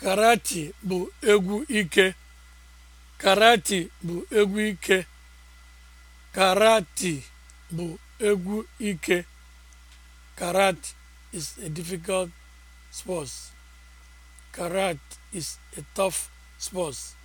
Karati bụ egwu ike. Karati bụ egwu ike. Karati bụ egwu ike. is a difficult sport. Karate is a tough sport.